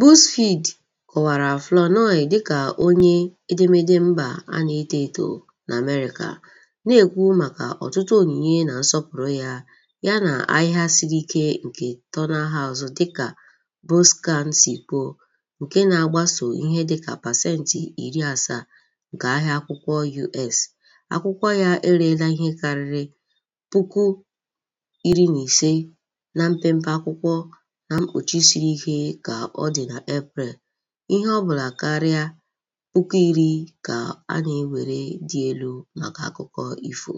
BuzzFeed kọwara Flournoy dịka onye edemede mba a na-eto eto na n'Amerịka, na-ekwu maka ọtụtụ onyinye na nsọpụrụ ya na ahịa siri ike nke Turner House dịka Buscán si kwuo, nke na-agbaso ihe dịka pasentị iri asaa nke ahịa akwụkwọ U.S. Akwụkwọ ya ereela ihe karịrị puku na mpempe akwụkwọ. na mkpuchi siri ike ka ọ dị na Eprel, ihe ọbụla karịa puku iri ka a na-ewere dị elu maka akụkọ ifo.